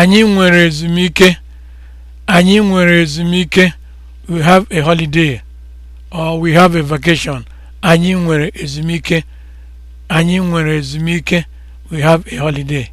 Anyị nwere ezumike. Anyị nwere ezumike. We have a holiday or we have a vacation. Anyị nwere ezumike. Anyị nwere ezumike. We have a holiday.